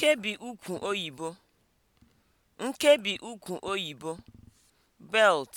Nkebi ukwu oyibo belt